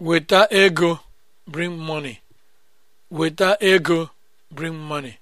Weta ego bring money. Weta ego bring money.